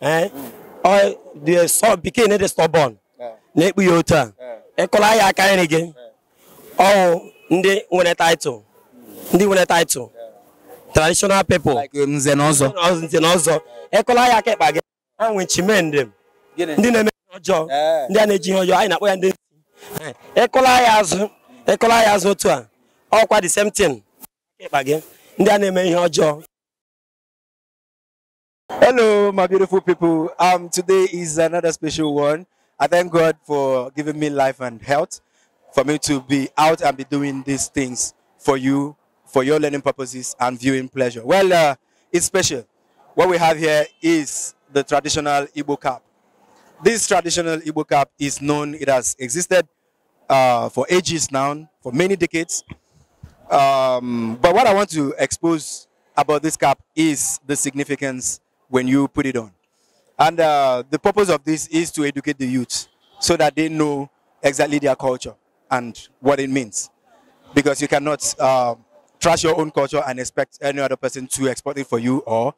Eh? the son became stọbọn na-ekpu otu a e ya aka nri gị ọwụ ndị nwere title ndị nwere title traditional people um, nze na e ọzọ ịkụla ya aka ịkpa gị a nwe chimendị ndị na-eme ihe ọjọọ ndị na-eji ihe ọjọọ na-akpọ ya ndị eh, e ya azụ ya azụ otu a ọkwa the same thing gị ndị a na-eme ihe ọjọọ Hello, my beautiful people. Um, today is another special one. I thank God for giving me life and health, for me to be out and be doing these things for you, for your learning purposes and viewing pleasure. Well, uh, it's special. What we have here is the traditional Igbo cap. This traditional Igbo cap is known, it has existed uh, for ages now, for many decades. Um, but what I want to expose about this cap is the significance when you put it on. And uh, the purpose of this is to educate the youth so that they know exactly their culture and what it means. Because you cannot uh, trash your own culture and expect any other person to export it for you or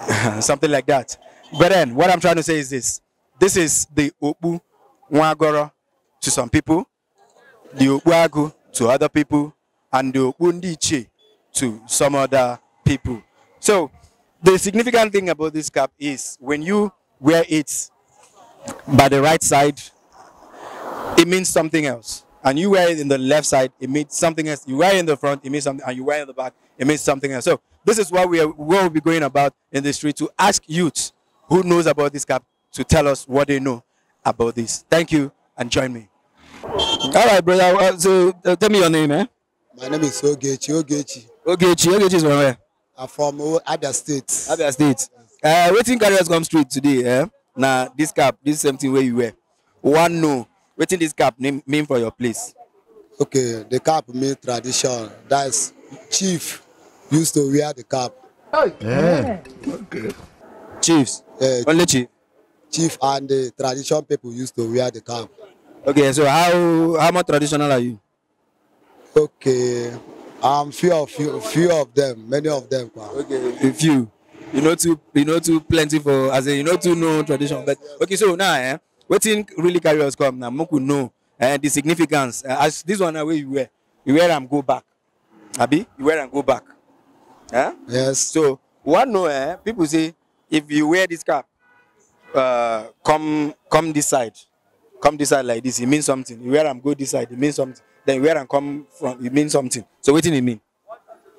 something like that. But then, what I'm trying to say is this. This is the Opu Wagoro to some people, the Opu to other people, and the Opu to some other people. So the significant thing about this cap is when you wear it by the right side, it means something else. And you wear it in the left side, it means something else. You wear it in the front, it means something, and you wear it in the back, it means something else. So this is what we are, what we'll be going about in the street to ask youth who knows about this cap to tell us what they know about this. Thank you, and join me. All right, brother. So uh, tell me your name, eh? My name is Ogechi. Ogechi. Ogechi. Ogechi is where? I'm from other states. Other states. Uh, waiting carriers come straight today. Eh? Now, this cap, this same thing where you wear. One no. Waiting this cap name, mean for your place. Okay, the cap mean tradition. That's chief used to wear the cap. Oh, yeah. yeah. Okay. Chiefs. Uh, Only chief. Chief and the tradition people used to wear the cap. Okay, so how how much traditional are you? Okay. Um, few of few, few of them, many of them. Okay, a few. You know too, you know too plenty for as a you know too no tradition. But okay, so now eh, what thing really carry us come now. Moku know eh, the significance. Uh, as this one where you wear, you wear and go back. Abi, you wear and go back. Eh? Yes. So one know eh, people say if you wear this cap, uh, come come this side, come this side like this. It means something. You wear and go this side. It means something then wear and come from, it means something. So what did it mean?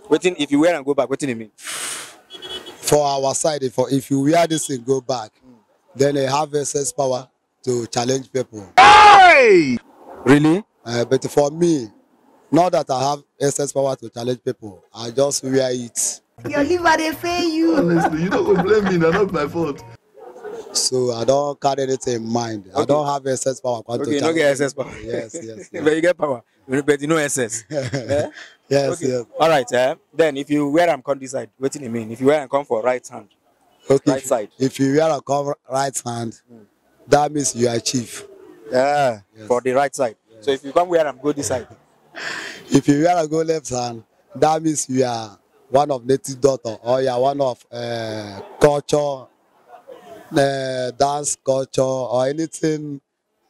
Waiting, if you wear and go back, what did it mean? For our side, for if you wear this and go back, mm. then they have a sense power to challenge people. Hey! Really? Uh, but for me, not that I have excess power to challenge people, I just wear it. Your liver dey fail you. Honestly, you don't blame me, na not my fault. So I don't carry anything in mind. Okay. I don't have excess power. Okay, you don't get excess power. Yes, yes. yes. but you get power but you know SS. yeah? Yes, okay. yes. All right. Eh? Then if you wear am come this side, what do you mean? If you wear and come for right hand, okay, right side. If you wear am come right hand, mm. that means you are chief. Yeah, yes. for the right side. Yes. So if you come wear am go this side. if you wear am go left hand, that means you are one of native daughter or you are one of uh, culture, uh, dance culture or anything,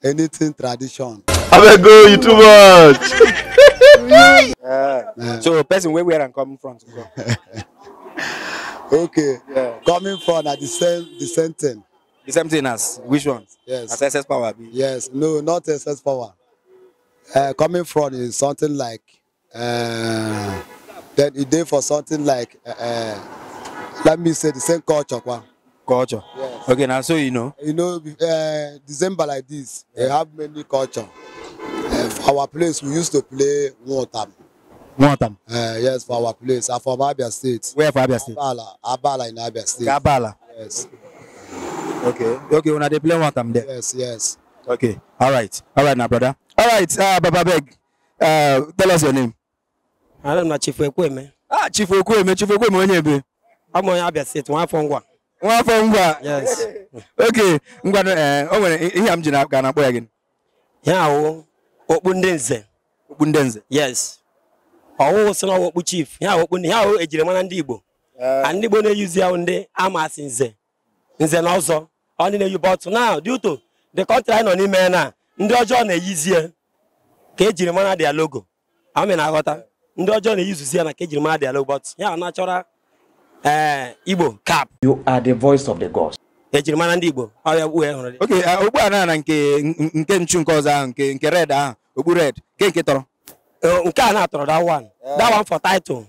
anything tradition abeg you too much. so person wey wear am come front go. okay yeah. coming from na uh, the same the same thing. the same thing as which one. yes as excess power be. yes no not excess power uh, coming from is something like uh, then e dey for something like uh, uh, let me say the same culture kwa. culture yes. okay Now, so you know. you know uh, december like this yeah. they have many culture for our place we used to play nwotam nwotam uh, eh, yes for our place and from abia state where for abia state abala abala in abia state abala yes okay okay una dey play nwotam there yes yes okay all right na brother all right uh, baba beg uh, tell us your name ana m na chifu ekweme ah chifu ekweme chifu onye ebe abụ onye abia steeti nwa nwa ngwa eh, ihe ji akpọ ya gị okpu ndị nze okpu nze yes ọwụwụ so na ọwụkpu chief ya okpu ndị ya ejirimara ndị igbo eh. ndị igbo na-eyuzi ya ndị amasị nze nze na ọzọ ọ dị na-eyi bọtụ na dị ụtọ the country anyị nọ n'ime na ndị ọjọọ na-eyizie ka ejiri mara dị logo amị na-aghọta ndị ọjọọ na-eyuzuzi ya na ka ejiri mara dị logo bọtụ ya na-achọra eh, igbo cap you are the voice of the gods ejirimara ndị Igbo ọrịa uwe hụrụ dị. oke okpu na nke nke nchu nke ọzọ ahụ nke nke red ahụ okpu red nke nke tọrọ. nke a na-atọrọ that one that one for title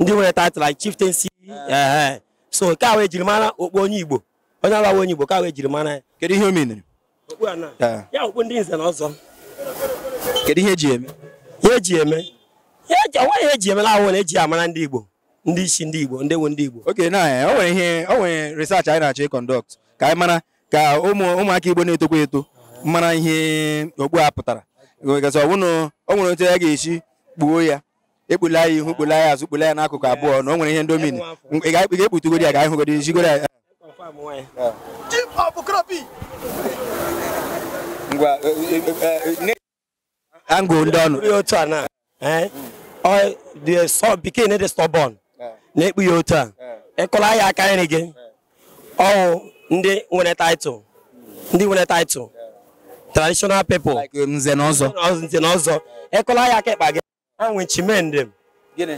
ndị nwere title like chieftaincy eh, eh. so nke a wee jiri mara okpu onye Igbo onye agbawa onye Igbo ka wee jiri mara ya. kedu ihe o menere. a na ya okpu ndị nze na ọzọ. kedu ihe eji eme. ihe eji eme onweghị eji onwe eji eme na ahụ na eji amara ndị Igbo ndị isi ndị Igbo ndị wu ndị Igbo. oke na ọ nwere ihe o nwere research anyị na-achọ ịkọndọkt ka anyị mara ka ụmụ ụmụaka Igbo na-etokwa eto mara ihe okpu a pụtara gazi ọbụna o nwere otu ya ga-esi kpuo ya ekpula ya ihu kpula ya azụ kpula ya n'akụkụ abụọ na o nwere ihe ndomini ị ga-ekputugodi ya ka anyị hụgodi jigoro ya angụ e. e, e, ndị ọnụ bekee na-ede stọbọn na-ekpu ya otu a ịkụla ya aka nri gị ọwụ ndị nwere title ndị nwere title traditional people um, nze na ọzọ nze na ọzọ ekụla ya aka ekpa gị a nwe chimendị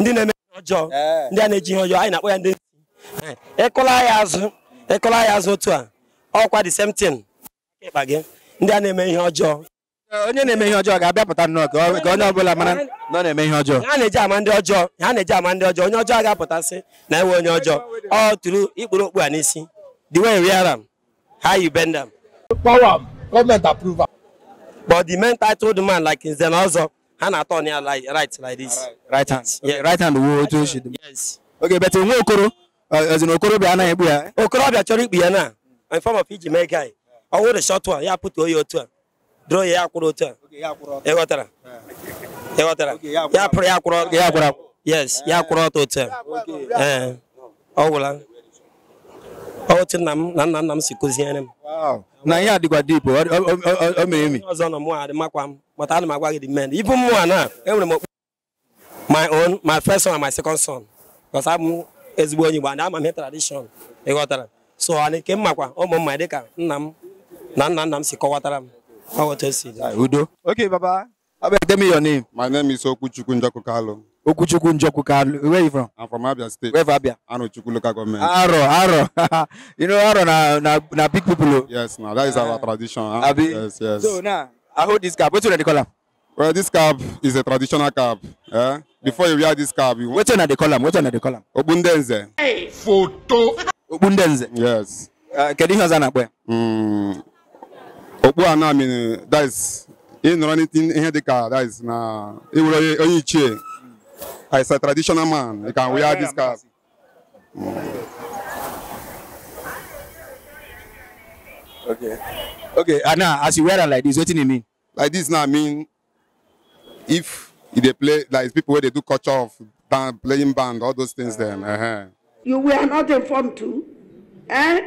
ndị na-eme ihe ọjọọ eh. ndị a na-eji ihe ọjọọ anyị na-akpọ ya ndị eh, ekụla ya azụ ekụla ya azụ otu a ọkwa the same thing ekpa gị ndị a na-eme ihe ọjọọ eh, onye na-eme ihe ọjọọ ga-abịapụta nnọọ ka onye ọbụla mara na ọ na-eme ihe ọjọọ ha na-eji ama ndị ọjọọ ha na-eji ama ndị ọjọọ onye ọjọọ ga na enwe onye ọjọọ ọ tụrụ ikpuru okpu a n'isi the way you wear am how you bend am power am government approve am but the men titled man like Nze Ozo ha na-atọ right like this right hand right hand wuo otu o should yes okay but nwa okoro ezi uh, okoro okorobịa anaghị egbu ya okorobịa chọrọ ikpu ya naa in form of iji mee guy ọ wụrụ short one ya put oyi otu a draw ya ya kwụrụ otu a ịghọtara ịghọtara ya pụrụ ya kwụrụ ya kwụrụ yes ya kwụrụ ọtọ otu a ọ gwụla otu nna m na nna nna m si kụziere m na ihe adịkwa dip o mere emi ọzọ nọ mụ adị makwa m mata ana m agwa gị dị men m mụnwa na enwere m okpu my own my first son and my second son because abụ m ezigbo onye Igbo ama m ihe tradishọn ịghọtara so anyị nke m makwa ụmụ mma dịka nna m na nna nna m si kọwatara m otu o si udo okay baba how about your name my name is Okwuchukwu Njoku Kalu Okuchukwu Njokukalu. Where you from? I'm from Abia State. Where from Abia? Anochukwu local government. Aro, Aro. you know Aro na na na big people. Oh? Yes, now that is uh, our ah. tradition. Huh? Ah, Abi. Yes, yes. So now I hold this cap. Wetin una dey call am? Well, this cap is a traditional cap. Eh? Before you wear this cap, you. Wetin una dey call am? Wetin una dey call am? Obundenze. Hey, photo. Obundenze. Yes. Uh, Kedu ihe ọzọ na-akpọ In Okpu anọ amini, that is, ịnọrọ n'ihe dị that is na, ịwụrụ onye ichie. It's a traditional man, you can wear this cap. Okay. Okay, and now as you wear it like this, what do you mean? Like this now I mean if they play like people where they do culture of band playing band all those things then Uh -huh. You were not informed too? Eh?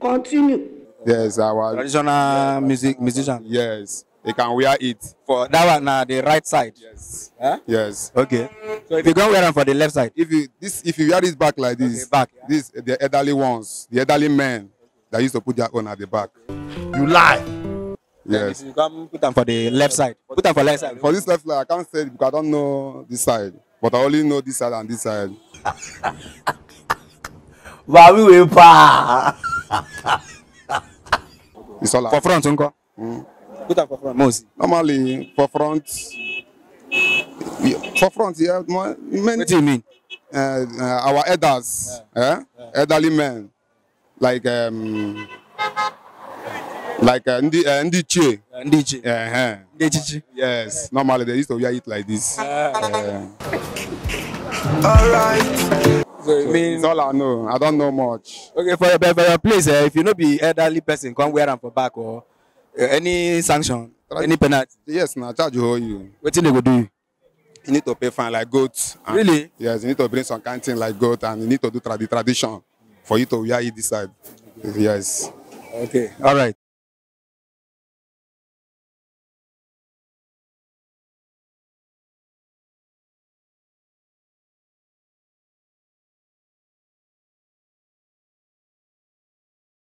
Continue. Yes, our traditional music musician. Yes they can wear it. For that one, now the right side. Yes. Huh? Yes. Okay. So if you go wear them for the left side. If you this, if you wear this back like this, okay, back. Yeah. This the elderly ones, the elderly men that used to put their own at the back. You lie. Yes. You come put them for the left side. Put them for left side. For this left side, I can't say it because I don't know this side, but I only know this side and this side. Mami we pa. It's all. For front, unko. Mm. Put up for front. Mosi. Normally for front. For front, yeah. Many, what do you mean? Uh, uh, our elders, yeah. Eh? Yeah. elderly men, like um, like uh, ndi uh, ndiche. Uh, ndiche. Uh -huh. Ndichichi. Yes. Normally they used to wear it like this. Yeah. Uh, all right. So, it means it's all I know. I don't know much. Okay, for your, for your place, uh, if you know be elderly person, come wear them for back or. Oh. Eh, any sanction any penalty. yes na charge you hold you. wetin dey go do you. you need to pay fine like goat. And, really. yes you need to bring some kind thing like goat and you need to do tra the tradition for you to wear it this side yes. okay all right.